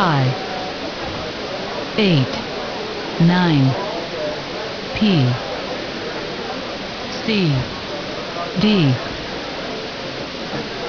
five, eight, nine, P, C, D.